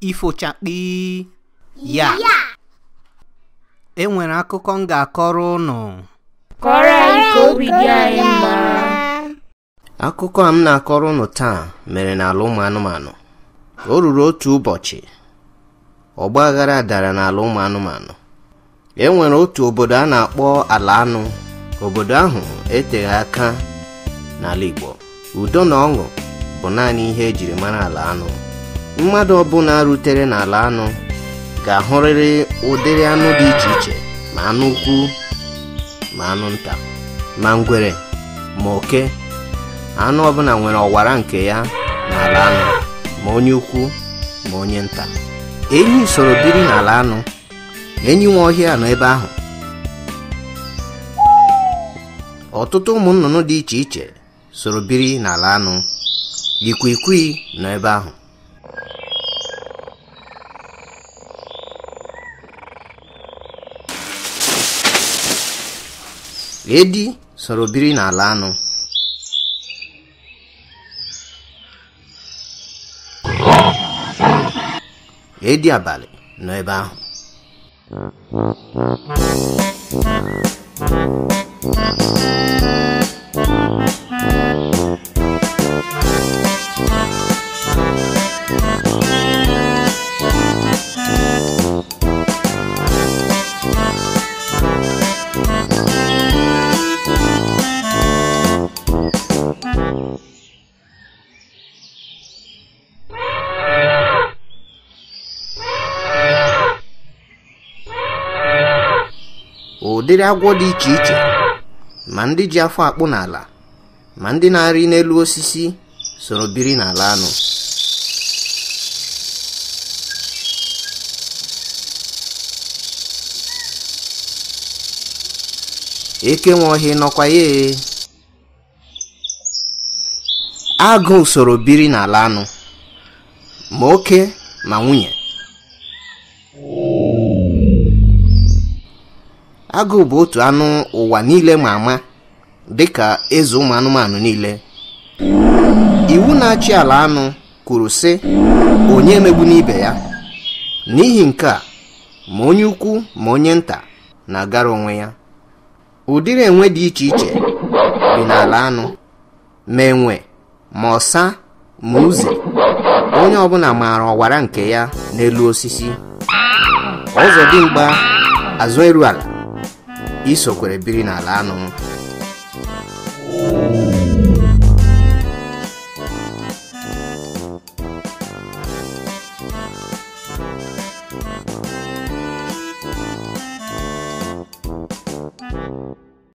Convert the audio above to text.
Ifo chak di iya. Ya. yeah. Yeah. enwere akụkọ m ga-akọrọ ụnụ kọrọ anyị ka anyị akụkọ a m na-akọrọ ụnụ taa mere n'ala ụmụ anụmanụ o ruru otu ụbọchị ọgba aghara dara n'ala ụmụ anụmanụ e nwere otu obodo a na-akpọ ala anụ obodo ahụ eteghị aka n'ala Igbo udo na ọṅụ bụ naanị ihe ejiri mara ala anụ mmadụ ọbụla rutere n'ala anụ ga-ahụrịrị ụdịrị anụ dị iche iche ma anụ ukwu ma anụ nta ma ngwere ma oke anụ ọbụla nwere ọwara nke ya n'ala anụ ma onye ukwu ma onye nta enyi soro biri n'ala anụ enyi nwa ọhịa nọ ebe ahụ ọtụtụ ụmụ nnụnụ dị iche iche soro biri n'ala anụ ikwikwii nọ ebe ahụ edi soro biri n'ala anụ edi abalị nọ ebe ahụ ụdịrị agwọ dị iche iche ma ndị ji afọ akpụ n'ala ma ndị na-arị n'elu osisi soro biri n'ala anụ eke nwe ohi nọkwa ya agụ soro biri n'ala anụ ma oke ma nwunye agụụ bụ otu anụ ụwa niile ma ama dịka eze ụmụ anụmanụ niile iwu na-achị ala anụ kwuru sị onye megbu n'ibe ya n'ihi nke a ma onye ukwu ma onye nta na-agara onwe ya ụdịrị enwe dị iche iche dị n'ala anụ ma enwe ma ọsa ma uze onye ọbụla maara ọwara nke ya n'elu osisi ọzọdimgba azụ eru isokwere biri n'ala anụ